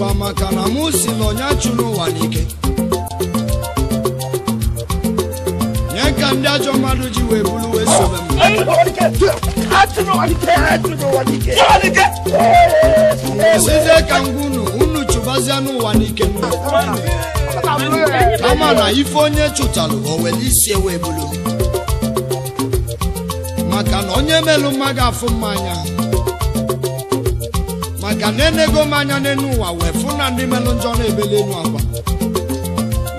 ọkwa maka na mụ si na ọnya chụrụ ụwa n'ike nye ka ndị ajọ mmadụ ji wee bụrụ wee sobe m sizie ka ngwa unu unu chụbazie n'ụwa n'ike kama na ife onye chụtalụ o were isi wee bụrụ maka na onye melụ mma ga-afụ mmanya maka na enego m anya ụwa wee fụ na ndị melụ njọ na-ebeli enu akwa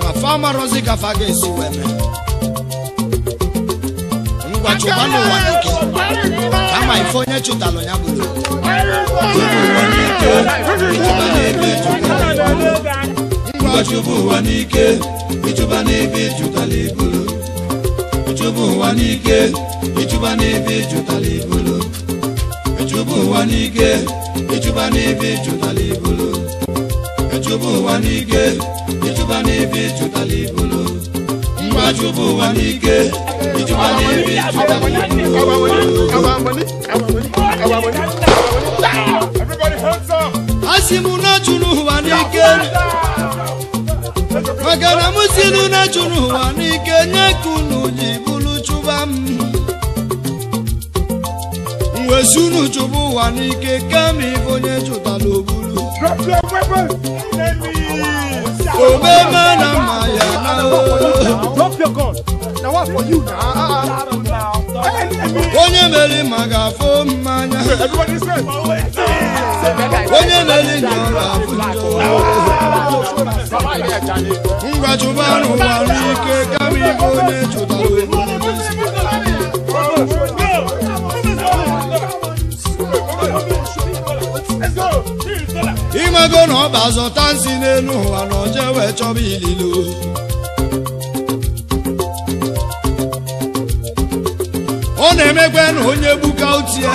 ma fa amarozi ka ga-esi wee mee ngwa chụba n'ụwa nke kama ife onye chụtalụ ya bụrụ ngwa chụba ụwa n'ike ịchụba n'ebe ịjụtala ibulu chụba echụba ụwa n'ike ịchụba n'ebe ịchụtala ibulu echụba ụwa n'ike ịchụba n'ebe ịchụtala ibulu mgbe achụba ụwa n'ike ịchụba n'ebe ịchụtala ibulu asị m na chụrụ ụwa n'ike maka na m si na chụrụ ụwa n'ike nye ka unu ji bụrụ chụba m wee sunu chụpụ ụwa n'ike kama ife onye chụtara obulu omeme na mma ya na ah, ah, ah. onye meri ma ga mmanya onye meri nyọrọ afụjọ ngwa chụba n'ụwa n'ike kama ife onye chụtara obulu ego na ọba zụta nsi n'elu ụwa na oje wee chọba ililo ọ na-emekwa na onye gbuka utie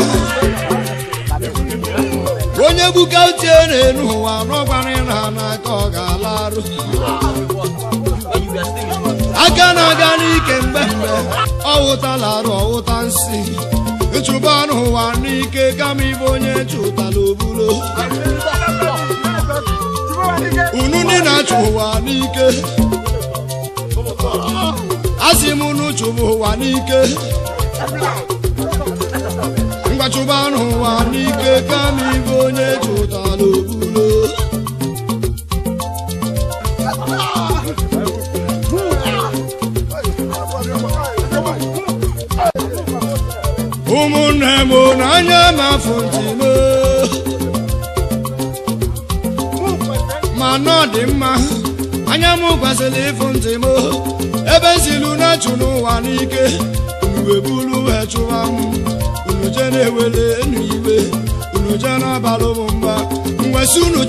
onye gbuka utie n'elu ụwa n'ọgwara n'aka ọ ga-ala arụ aka na-aga n'ike mgbe mgbe ọ wụtala arụ ọwụta nsi ịchụba n'ụwa n'ike kama ibe onye chụtala obulo unu ndị na-achụ ụwa n'ike asị m unu chụbụ ụwa n'ike mgbachụba n'ụwa n'ike kama ibe onye chụtara obulo ụmụnne m n'anya ma afọ ntị ọnụ dị mma anya m gwaziri ịfụ ntị m ebe zilu na n'ike unu wee chụwa m unu je na-ewere iwe unu je na mba unu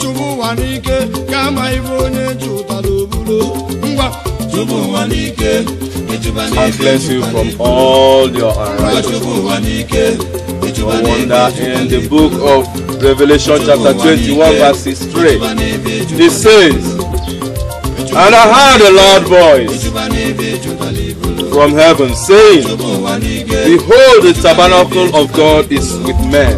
chụba ụwa n'ike ka ama ibe onye chụtara obulo ngwa chụba ụwa n'ike I bless you from all your wonder in the book of Revelation chapter 21, verse 3. It says, And I heard a loud voice from heaven saying, Behold, the tabernacle of God is with men.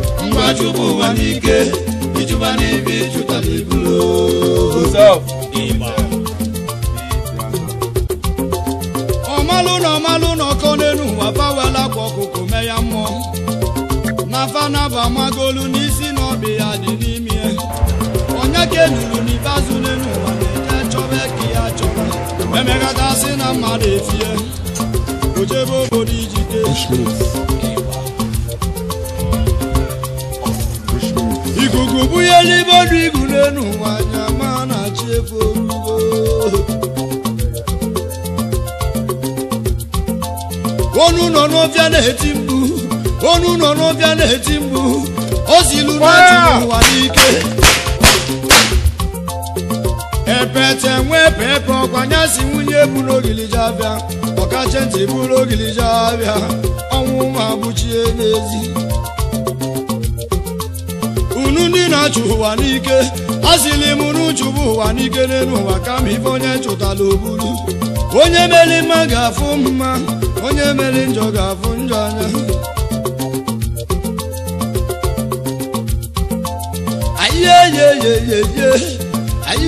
ọmalụna ọmalụna ọkọ n'enu abawela kwa ọkụkụ me ya mmụọ na fanaba amagolu n'ihi eke nuru n'ikpeazụ n'elu ụwa na-ete chọba eke ya chọba emegata si na mmadụ etie o jebe obodo iji ikuku bunye n'ime ọdụ ibu n'elu ụwa anya ma na-achị efu orugo onu nọ n'ofe na-eti mgbu onu nọ n'ofe na-eti mgbu na zilu n'ụwa n'ike pete nwee pepe si nwunye buru ogiliji abịa ọkacha ntị buru ogiliji abịa ọnwụ ma n'ezi unu ndị na-achụ ụwa n'ike asịlị m unu chụbụ ụwa n'ike n'elu ụwa kama ife onye chụtala oburu onye mere mma ga-afụ mma onye meri njọ ga-afụ njọ anya ayeyeyeyeye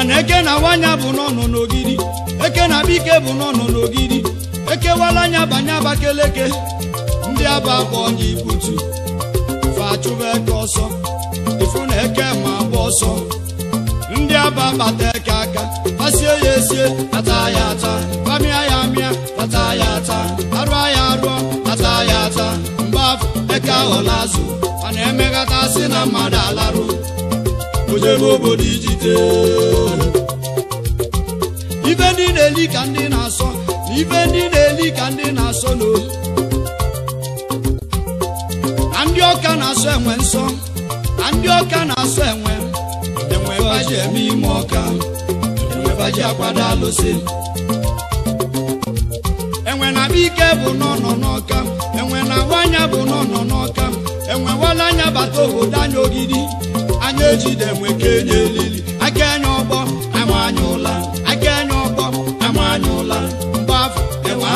mana eke na wanya bụ n'ọnụ n'ogidi eke na bike bụ n'ọnụ n'ogidi ekewala anya banye abakeleke ndị aba bụ ọnya ibutu fachụba eke ọsọ ifu na eke ma bụ ọsọ ndị aba bata eke aka pasie ya esie ata ya ata pamịa ya amịa ata ya ata arụọ ya arụọ ata ya ata mgbe afọ eke aghọla azụ a na-emeghata sị na mmadụ alarụ ojebe obodo ijite ife ndị na-eli ka ndị na-asọ na ife ndị na-eli ka ndị na-asọ n'olu na ndị ọka na-asọ enwe nsọ na ndị ọka na-asọ enwe enwe baji eme ime ọka enwe baji akwado alụsị enwe na ike bụ n'ọnọ n'ọka enwe na-ahụ anya bụ n'ọnọ n'ọka enwe wala anya bata obodo anya ogidi anya ejide enwe ka enye elili aka enye ọgbọ ama anya ụla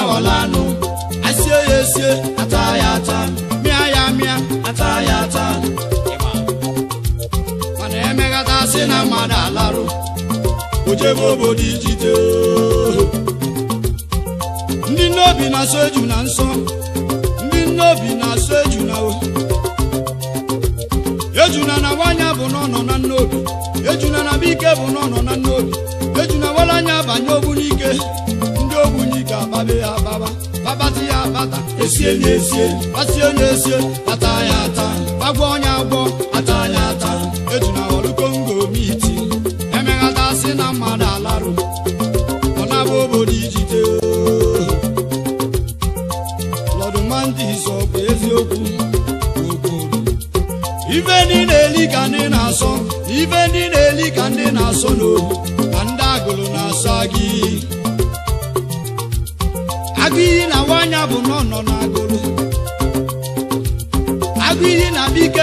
aghọlanụ asie ya esie ata ya ata mịa ya mịa ata ya ata mana emeghata si na mmadụ alarụ ojebe obodo ijide ndị nnobi na-asọ eju na nsọ ndị nnobi na-asọ eju na ejuna na wanya bụ n'ọnọ na nnobi ejuna na bike bụ n'ọnọ na nnobi ejuna wala anya banye ogbunike ababe ababa babati ya bata esie na esie basie na esie ata ya ata agwọ onye agwọ ata ya ata eji na ọrụ kongo miti emeghata si na mmadụ alarụ ọ na-abụ obodo ijite lọdụ mandis ọ bụ eziokwu ife ndị na-eli ka ndị na-asọ ife ndị na-eli ka ndị na-asọ n'ohu ka ndị agụrụ na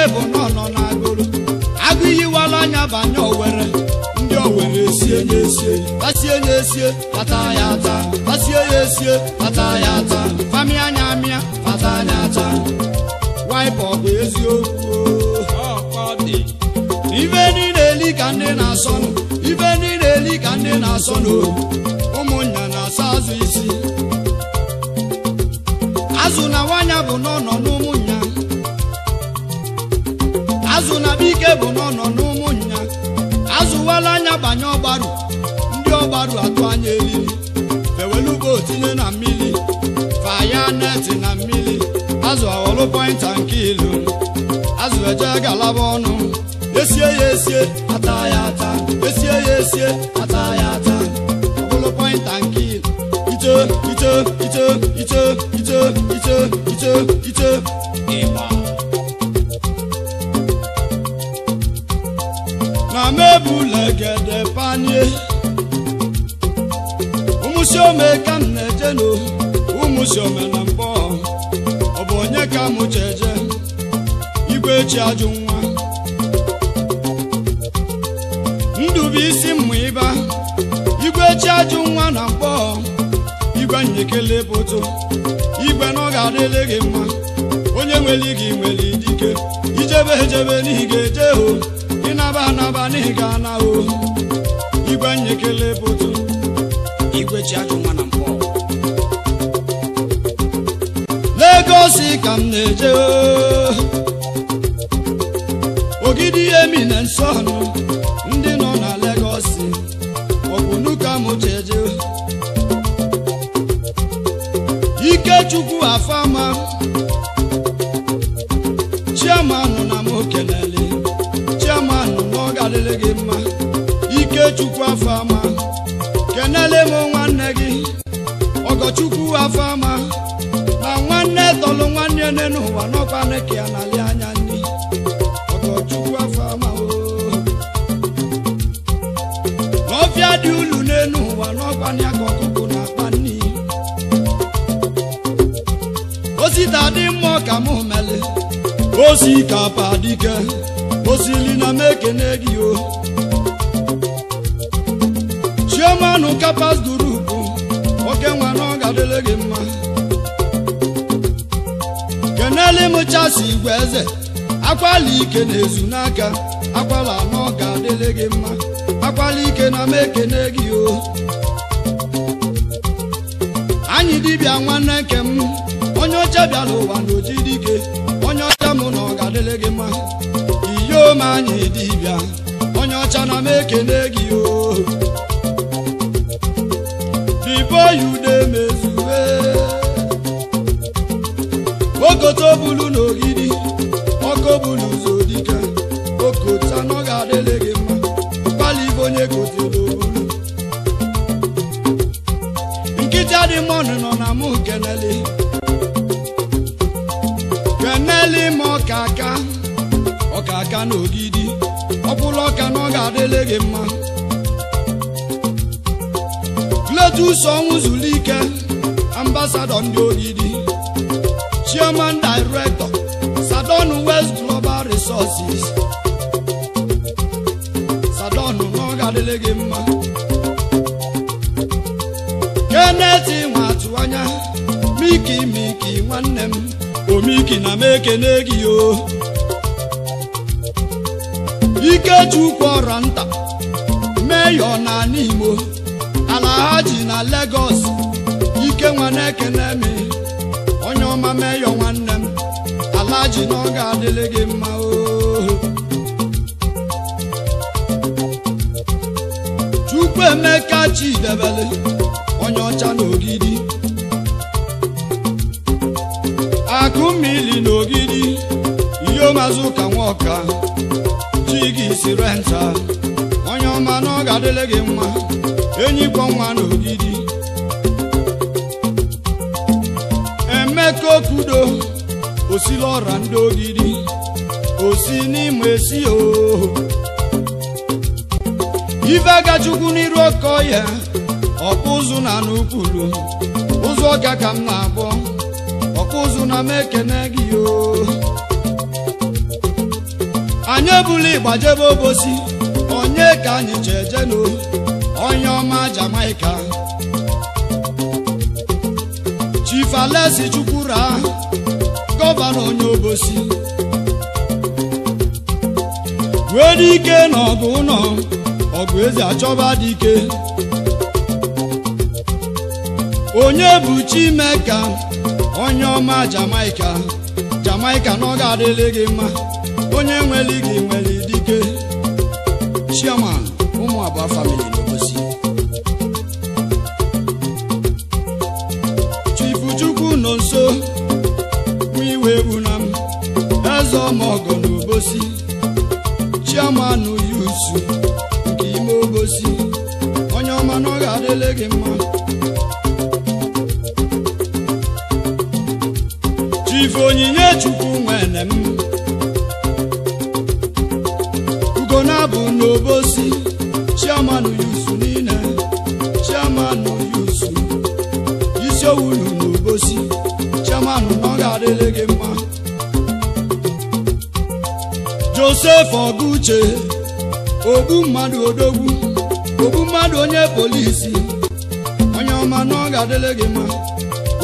ife bụ n'ọnọ na agụrụ agụ yiwala anya banye owere ndị owere esie ya esie tasie ya esie pata ya ata tasie ya esie pata ya ata famịa anya amịa pata anya ata waịpa bụ eziokwu ife niile eli ka ndị na-asọnụ ife niile eli ka ndị na-asọnụ ụmụnna na-asa azụ isi azụ na nwanya bụ n'ọnọ bụ n'ọnọ n'ụmụnya azụwala anya banye ọgbaru ndị ọgbaru atụ anya eriri fewelugo tinye na mmiri faya neti na mmiri azụ aghọlụ pọinta nke ilu azụ eje galaba ọnụ esie ya esie ata ya ata esie ya esie ata ya ata ọbụlụ pọinta nke ilu ito ito ito ito ito ito ito ito ịgba amebụlegede panie ụmụsiome ka m na-ejenu ụmụsiome na mbọ ọ bụ onye ka m cheje igwe echi ajụ nwa ndubuisi mmụ ịba igwe echi ajụ nwa na mbọ igwe nyekele bụtụ igwe na ọ ga adịle gị mma onye nwere gị nwere dike ijebe ejebe n'ihi ga-eje o ịga gana o igwe nyekele bodo igwe ji ajụ nwa na Legosi ka m na-eje ogidi emi eminence ọnụ ndị nọ na Legosi ọ bụ ike m jeje Ikechukwu afama Ogochukwu afama kenele m nwanne gị Ogochukwu afama na nwanne tọlụ nwanne nne n'ụwa n'ọkwa neke ya n'ali anya nri Ogochukwu afama N'ọbịa dị ulu n'elu ụwa n'ọkwa ya ka na-akpa nri osita dị mma ka m mele osi ka padike osili na m ekene gị o ụka pasdurubu oke nwa na ọ ga-adịle gị mma kenele mụchasị igwe eze akwala ike na-ezu n'aka akwala na ọ ga-adịle gị mma akwala ike na m ekene gị o anyị dibịa nwanne nke m onye ọcha bịara ụwa na oji dike onye ọcha mụ na ọ ga-adịle gị mma iyom anyị dibịa onye ọcha na m ekene gị o ya ude mezue okoto bulu n'ogidi ọkọ bulu ụzọ dịka okota n'ọga adịlị gị mma mkpali ibe onye kote n'obulu nkịta dị mmanụ nọ na mụ keneli keneli ma ọka aka ọka aka n'ogidi ọkpụrụ ọka n'ọga adịlị mma ọsọ ọnwụ zuru ike ambasadọ ndị odidi chairman direktọ Sadon West Global Resources Sadon oh, na ọ gị mma keneti nwatụ anya miki miki nwanne m omiki na m ekene gị o Ikechukwu ọra nta meyọ na n'Imo aji ji na Lagos ike nwana na mi onye ọma meyo nwanne m ala ji na ọ ga-adịrị gị mma oo Chukwuemeka Chidebele onye ọcha n'ogidi ogidi akụmmili n'ogidi ogidi iheomazụ ka nwaọka ji gị isi renta onye ọma na ọ ga gị mma enyikọ nwa n'ogidi emeka okudo osila ọra ndị ogidi osi n'ime esi o ife gachukwu n'iru ọkọ ya ọkụ ụzụ na n'ukwulu ụzọ ọka ka m na-abọ ụzụ na m ekene gị oo anyị ebula ịgbajebe obosi onye ka anyị ji eje onye ọma Jamaica Chief Alesi Chukwura gọvanọ onye Obosi wee dike n'ọgụ ụlọ ọgụ eze achọba dike onye bụ Chimeka onye ọma Jamaica Jamaica na ọ ga gị mma onye nwere gị nwere dike Chairman ụmụ abụọ famili chioma ọgọ n'obosi chioma nụ yusu nke ime obosi onye ọma na ọ ga-adịle gị iche ogbu mmadụ odogwu ogbu mmadụ onye polisi onye ọma na ọ ga-adịle gị mma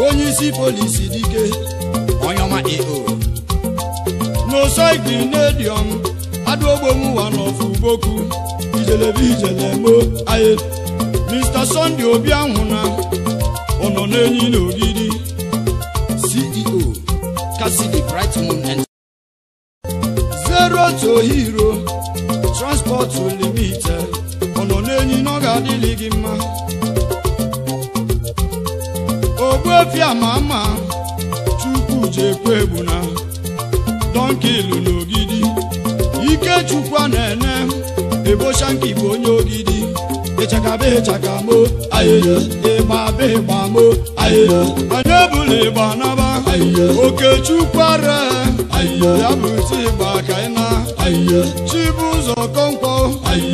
onye isi polisi dike onye ọma eo n'osoidi n'ediọm adụogbomụwa n'ofu boku ijelebe ijelemo aye Mr. Sunday Obi ahụ na ọ nọ n'enyi otu limite ọ nọ n'enyi na ọ ga-adịlị gị mma ogbuefi ama ama chukwu ji ekwu egbu na donkilu na ogidi ike chukwu na-ene ebocha nke igbo onye ogidi ịchakaba ịgba ayịya ịgbaba ịgbamo ayịya anyị ebula ịgba naba oke chukwu ara ya bụ iti ịgba ka ị na ayịya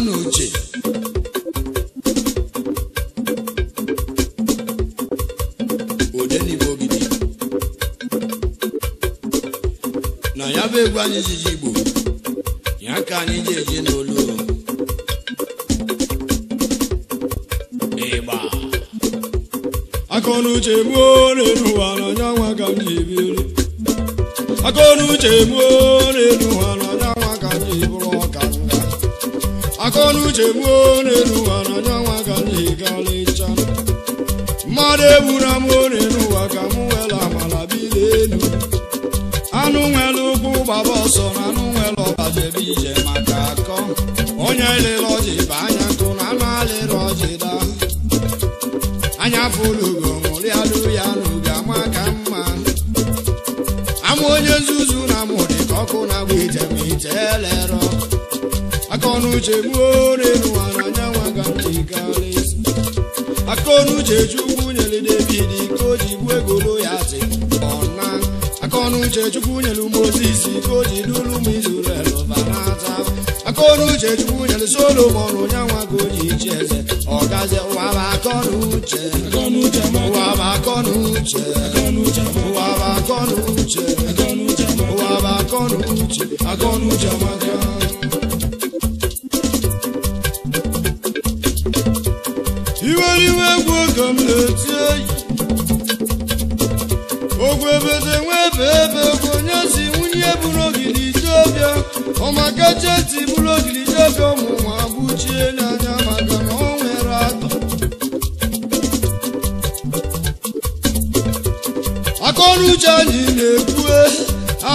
n'uche odenigbo gidi na ya bụ egwu anyị jiji igbo ya ka anyị ji eje n'olu ịgba akọnuche gbuo n'elu ụwa n'ọnya nwa ka m ji biri akọnuche gbuo eburu m ori n'ụwa ka m nwere amala bili elu anụ nwere ụkwụ gbaba ọsọ na anụ nwere ọbajebe ije maka akọ onye lere ọjị bụ anya nkụ na anụ alịrị ọjị daa anya fụlugo ṅụrịalụ ya n'oge ama ka mma amụ onye nzuzu na mụdị ka ọkụ na-agba ije ma ije elerọ aka ọnụ uche gbuo ori n'ụwa na anyanwụ aga m jikarị aka chukwu uche chukwu nyelu mozis ka o ji n'ụlọ ụmụ izrel bara ata aka ọrụ uche chukwu nyelu solomon onyanwa ka o ji ichi eze ọgazi ụwa bụ akọ na uche ụwa maka iwe iwe egwu oge m na-eti eyi ebede nwee ebe bụ onye si nwunye bụrụ ogidi jebịa ọmakacheti bụrụ ogidi jebịa ọmụnwa gbuchie n'anya maka na ọ nwere atọ akọnuche anyị na-ebue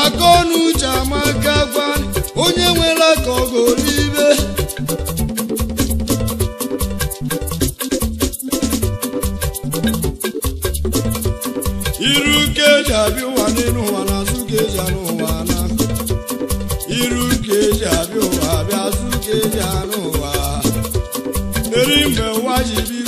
akọnuche amaka gwa onye nwere aka ṣàánú wa erí ń wá yìí bí.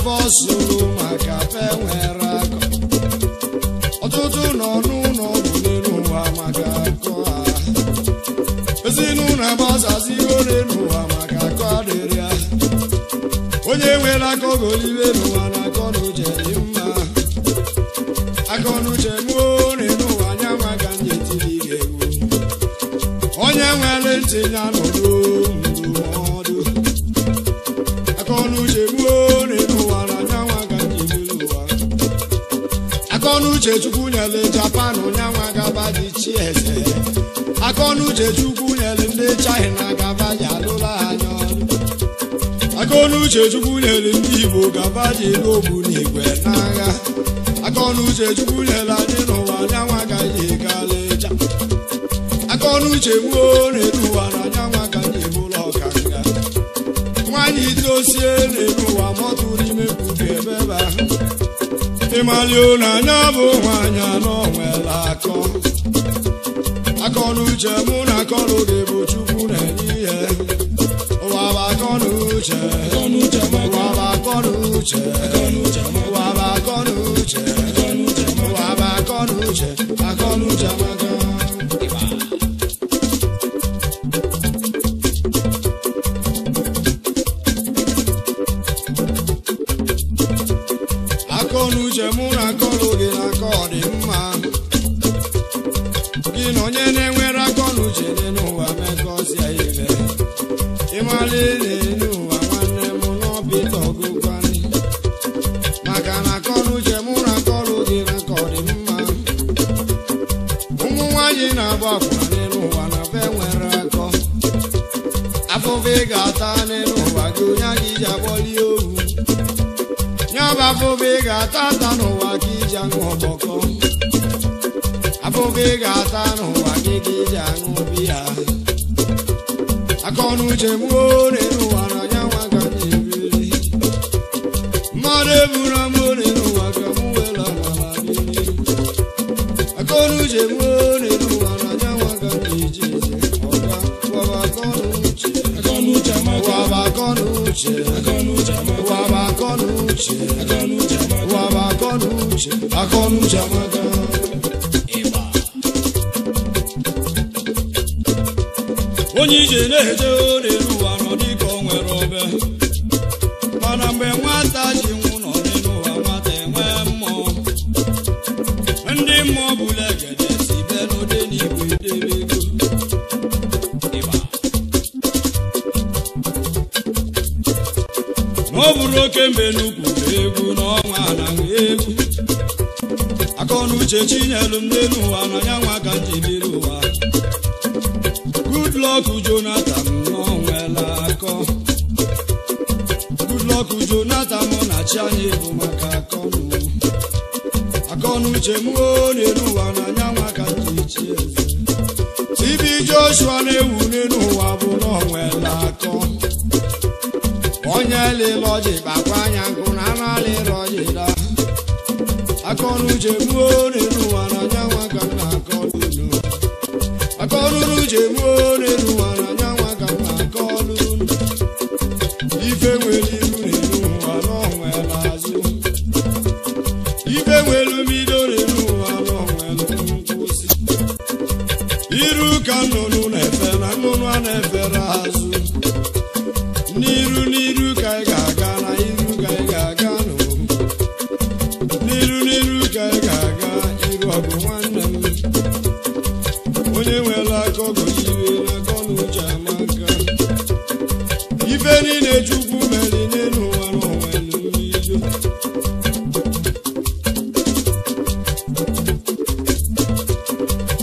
ebe ọ zụrụ maka fe nwere akọ ọtụtụ nọ n'ụlọ ọgwụ n'elu maka akọ ha ezinụlọ ebe ihe n'elu ụwa maka akọ adịrị onye nwere aka oge Uchechukwu nyere ndị China gaba ji alụla anya akaọnụ Uchechukwu nyere ndị Igbo gaba ji ego obu na igwe aka akaọnụ Uchechukwu nyere anyị n'ụwa anyanwụ agaghị egala ịcha akaọnụ uche gbuo na-edu ụwa na anyanwụ agaghị ebula ọkanga nwaanyị itosie na-eru ụwa mọtụ n'ime mkpuke ebe ebe ahụ ịmalio na anya bụ nwaanyị anọ nwere akọ akọnuche mụ na akọnụ gị bụ chukwu na-enye ihe ụwa bụ akọnuche ụwa bụ akọnuche ụwa bụ akọnuche ụwa bụ akọnuche fúnfẹ́ gàtá ata wàjú yá onye ìjà wọlé òwú. Yọba fúnfẹ́ gàtá ata ata kí ìjà ń wọ̀ bọ̀kọ́. Afúnfẹ́ gàtá nù wà kí ìjà ń wọ̀ bíyà. Akọ́nu ṣe mú ó uche waba waba akọnu uche akọnu uche amaka onye ije na-eje ọ na-eru ụwa nọ dịka o nwere ọbịa Ikembe nnukwu egwu n'ọnwa anaghị egwu akọnuche chinyelu m n'elu ụwa n'anya nwa ka m ji biri ụwa Goodluck Jonathan n'ọnwela akọ Goodluck Jonathan mụ na chi anyị ebu maka akọnụ akọnuche m o n'elu ụwa n'anya nwa ka m ji chi eze Ibi Joshua na-ewu n'elu ụwa bụ n'ọnwela akọ onye lịlọji gbakwa anya nkụ na analịrọji da akọnuche gbuo n'elu ụwa na onye nwa ka m na-akọ n'unu akọnuche gbuo n'elu ụwa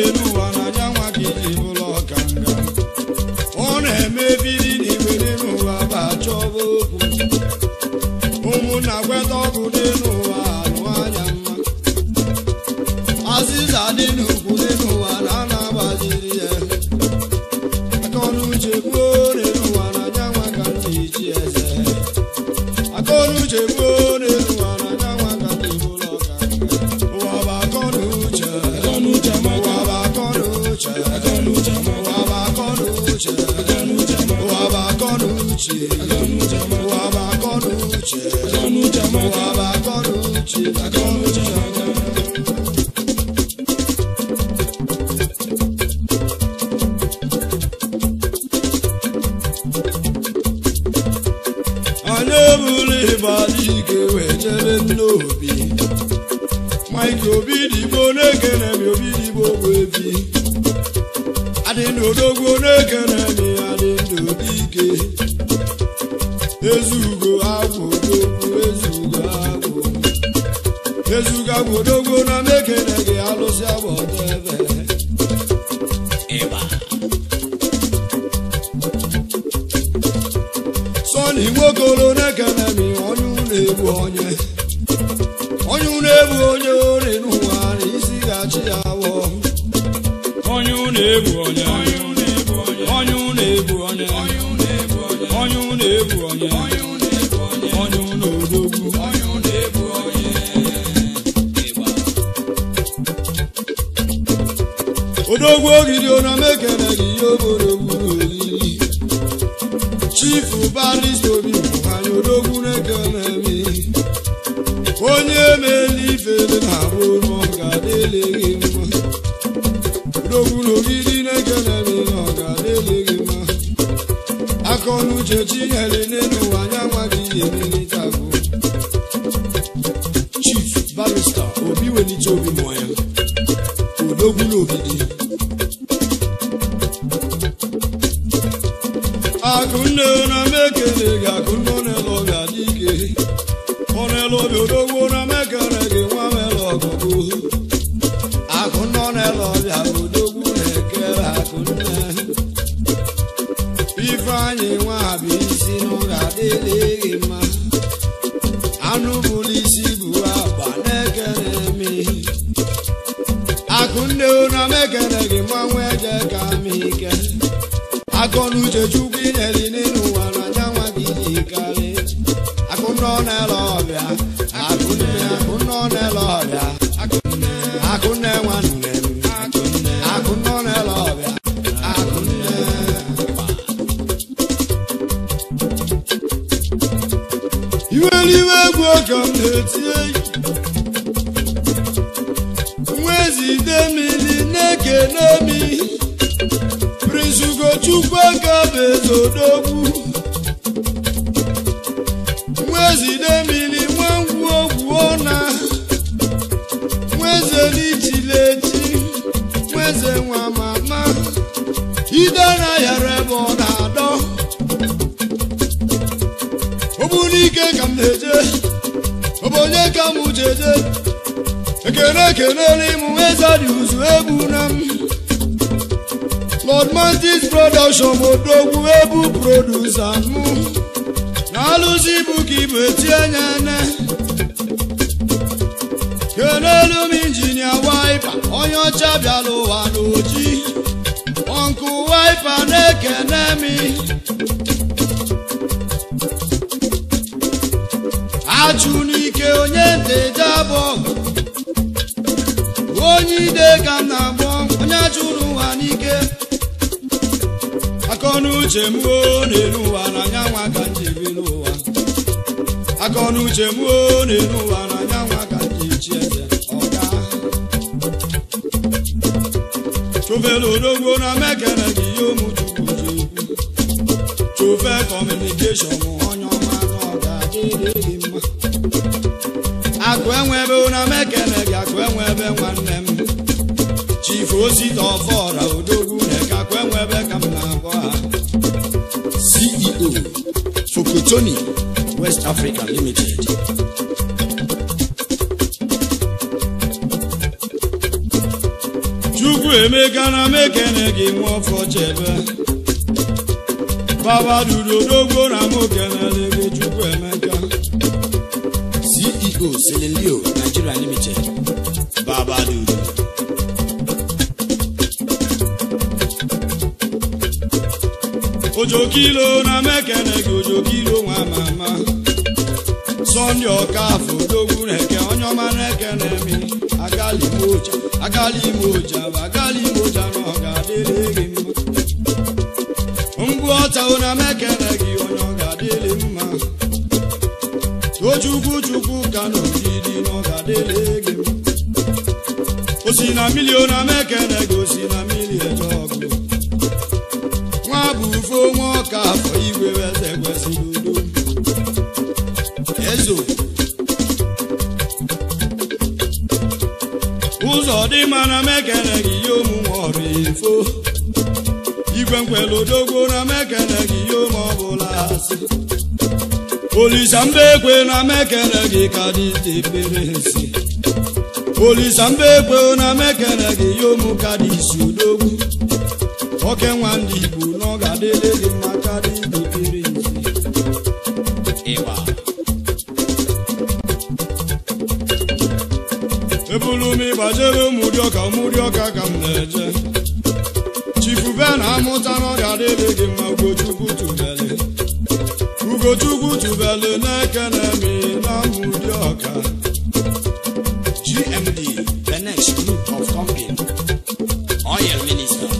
Peru uche aga n'uche ma ụwa bụ akọ n'uche aga n'uche odogwu ogidi ona mekere gị ihe obodogburu oyi chifu balist obi anyị odogwu na-ekele onye mele ifele na abụ coronel, olha niile ka m na-agbọ onye ụwa n'ike akọnuche m na-eru ụwa na anyanwụ ka m ji n'ụwa akọnuche m na ụwa na anyanwụ ka m ji chi eze ọga chụfere odogwo na mekere gị ihe omuchukwu ji chụfe kọmunikeshọn onye ọma na ọga adịghị mma akụ mekele gị akụ nwanne m chifu osita ọfọra odogwu nekakwa enwe ebe ka m na-agwa ha CEO Sokotoni West Africa Limited chukwu emeka na mekene gị nwa ọfọ chebe baba duru odogwu na mokenele gị chukwu emeka CEO Selenleo Nigeria Limited baba duru ojokilo na mekene gị ojokilo nwa ama ama sọnde ọkafọ odogwu na-eke onye ọma na-eke na-eme agala igbo oja agali igbo oja na ọ ga-adịrị gị mma mgbu ọtawo na mekene gị onye ọ ga-adịrị mma tochukwu chukwu ka na na ọ ga-adịrị gị mma osi na milio na mekene gị osi na aka afọ igwe eze kwesịrị udo ezo ụzọ dị mma na m gị ihe omume ọrụ ifo igwe nkwele odogwu na m gị ihe ome ọbụla asị olisa mba ekwe na m gị ka dị tepere nsị olisa mba ekwe na m gị ihe omu ka dị isi odogwu oke nwa ndị igbo na ọ ga na-ere ụmụrị ọka ụdị ọka ka m na-eje chifube na-amụta n'ọrịa dịrị gị mma ugochukwu tubele ugochukwu tubele na-eke na-eme na ụmụrị ọka GMD the of company oil minister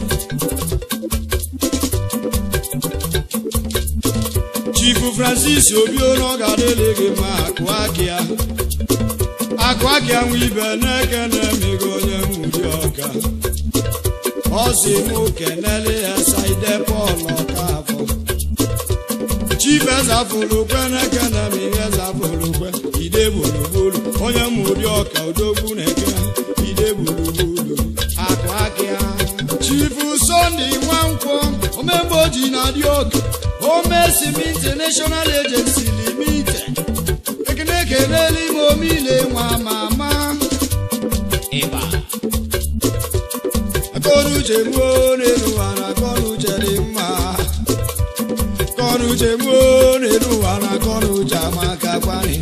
chifu francis obi ọ ga gị mma akụ Akịa. akụ Akịa anwụ ibe na-eke na-eme ọka ọ si mụ kenele ya saide pọl ọka afọ chibeza fụlukwe n'ekene ma iheza fụlukwe ide gburugburu onye mụ ụdị ọka odogwu na-eke ide gburugburu akụ aka ya chifu sọnde nwankwọ omemgbe oji na dị oke omesimi national agency limited ekene kenele ime omile nwa ama uche gbuo n'elu ụwa na akọnuche dị mma akọnuche gbuo n'elu ụwa na akọnuche amaka kwari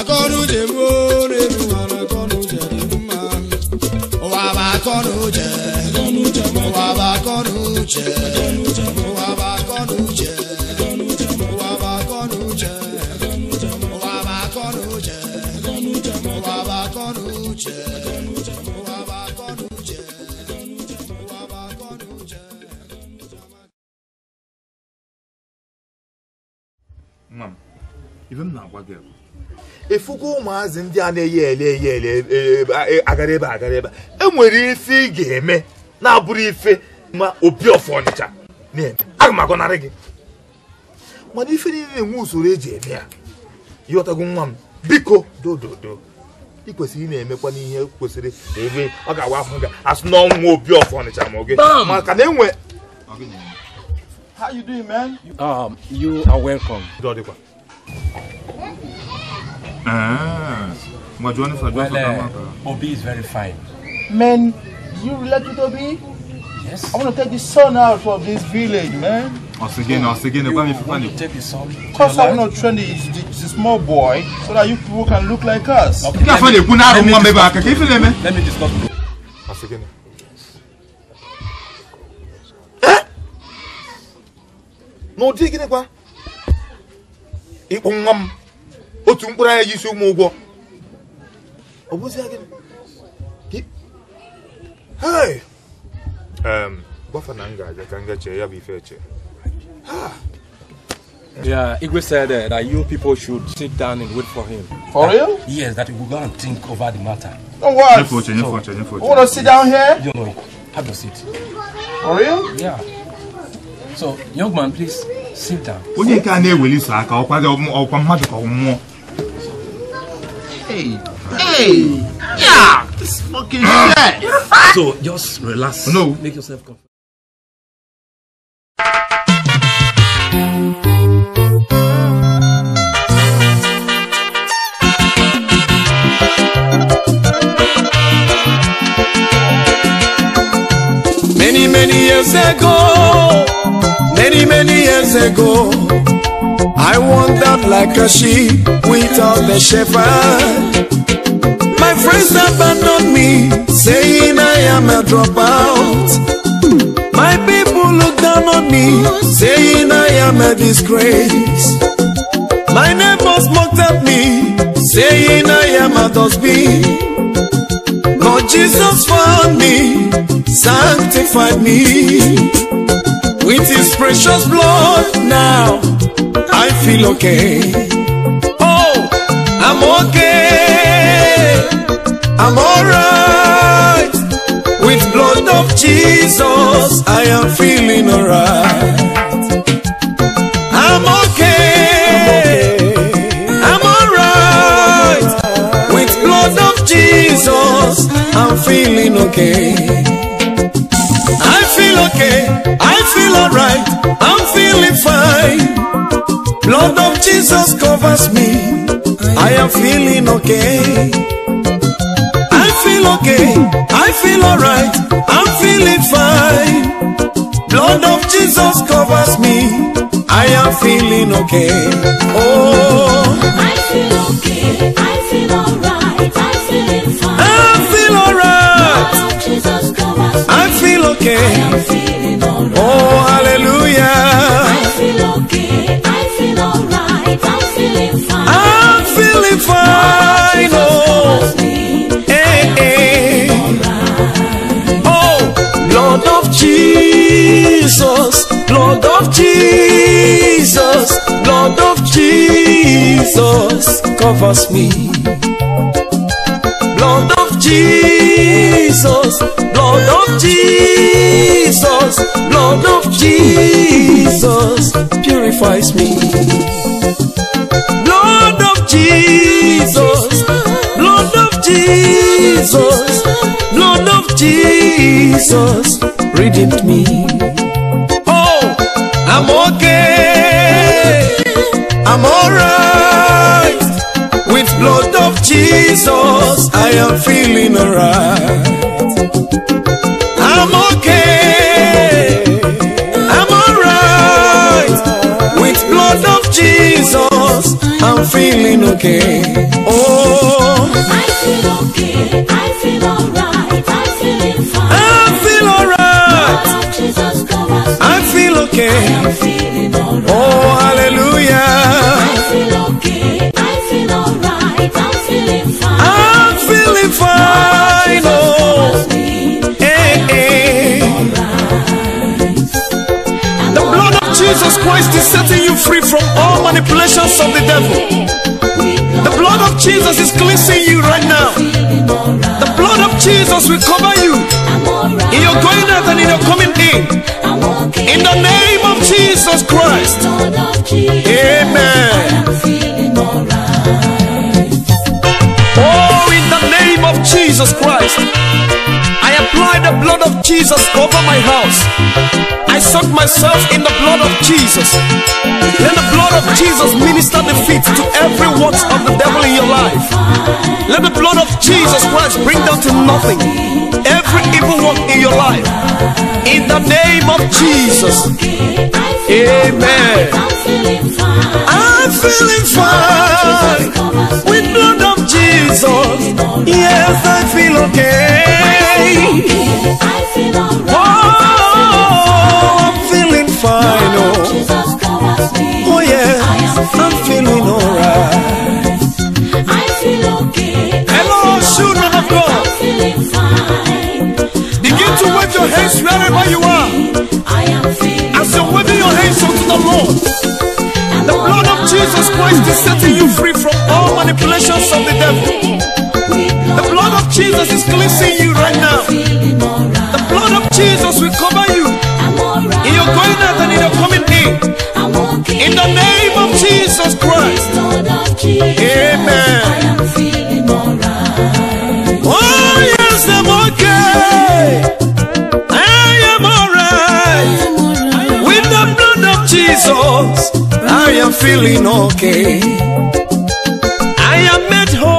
akọnuche gbuo n'elu ụwa na akọnuche dị mma ụwa bụ akọnuche ụwa bụ akọnuche maazị ndị a na-eyi ele eyi ele e, e, e, agara ebe agara ebe enwere ife ị ga-eme na-abụrụ ife ma opi ọfọ ọnịcha aga m agọnarị gị mana ife niile na-enwe usoro eji eme ya ịghọtago nwa m biko dododo ị kwesịrị ị na-emekwa n'ihe kwesịrị ebe ọ ga agwa ahụ gị asụ n'ọnwụ opi ọfọ ọnịcha ma oge maka na enwe How you doing, man? Um, you are welcome. Ah. Well, uh, Obi is very fine. Man, you relate with Obi? Yes. I want to take the son out of this village, man. Once again, once again, you want to take the son? Because I'm not training the, the small boy so that you people can look like us. Okay, let, me, let, me discuss, let me discuss Once again. No, dig it, Ikpungam otu mkpụrụ anya jisi ụmụ ụgwọ ọ m ga ka m ga chee ya bụ ife eche ah! Yeah, Igwe said uh, that you people should sit down and wait for him. For that, real? Yes, that we will go and think over the matter. Oh, what? you want to sit down here? You know, have your seat. For real? Yeah. So, young man, please sit down. Onye na-eweli so aka ọkwa mmadụ ka ọ Hey, hey, yeah, this fucking ah. shit. So just relax. No, make yourself comfortable. many years ago, many, many years ago, I wandered like a sheep without a shepherd. My friends abandoned me, saying I am a dropout. My people looked down on me, saying I am a disgrace. My neighbors mocked at me, saying I am a dustbin. Jesus found me, sanctified me. With his precious blood now, I feel okay. Oh, I'm okay. I'm alright. With blood of Jesus, I am feeling alright. I'm feeling okay. I feel okay. I feel alright. I'm feeling fine. Blood of Jesus covers me. I am feeling okay. I feel okay. I feel alright. I'm feeling fine. Blood of Jesus covers me. I am feeling okay. Oh, I feel okay. I feel alright. I feel okay. I am feeling alright. Oh, hallelujah. I feel okay. I feel alright. I'm feeling fine. I'm feeling fine. Oh, hey, eh, eh. oh, of Jesus, Lord of Jesus, Lord of Jesus covers me. Lord of Jesus. Jesus, blood of Jesus, blood of Jesus purifies me. Blood of Jesus, blood of Jesus, blood of Jesus redeemed me. Oh, I'm okay, I'm alright with blood of Jesus. Cause I am feeling alright. I'm okay. I'm alright. With blood of Jesus, I'm feeling okay. manipulations of the devil. The blood of Jesus is cleansing you right now. The blood of Jesus will cover you in your going out and in your coming in. In the name of Jesus Christ. Amen. Oh, in the name of Jesus Christ apply the blood of Jesus over my house. I soak myself in the blood of Jesus. Let the blood of Jesus minister defeat to every works of the devil in your life. Let the blood of Jesus Christ bring down to nothing every evil work in your life. In the name of Jesus. Amen. I'm feeling fine with blood of Jesus. Yes, I feel okay. I feel alright. I'm feeling fine. Oh. Oh, I'm feeling alright. I feel okay. I'm feeling fine. Begin to wave your hands wherever you are. I am As you're waving your hands unto the Lord. The blood of Jesus Christ is setting you free from all manipulations of the devil. The blood of Jesus is cleansing you right now. The blood of Jesus will cover you. In your going out and in your coming in. In the name of Jesus Christ. Amen. Oh, yes, I'm okay. I am alright. With the blood of Jesus, I am feeling okay. I am at home.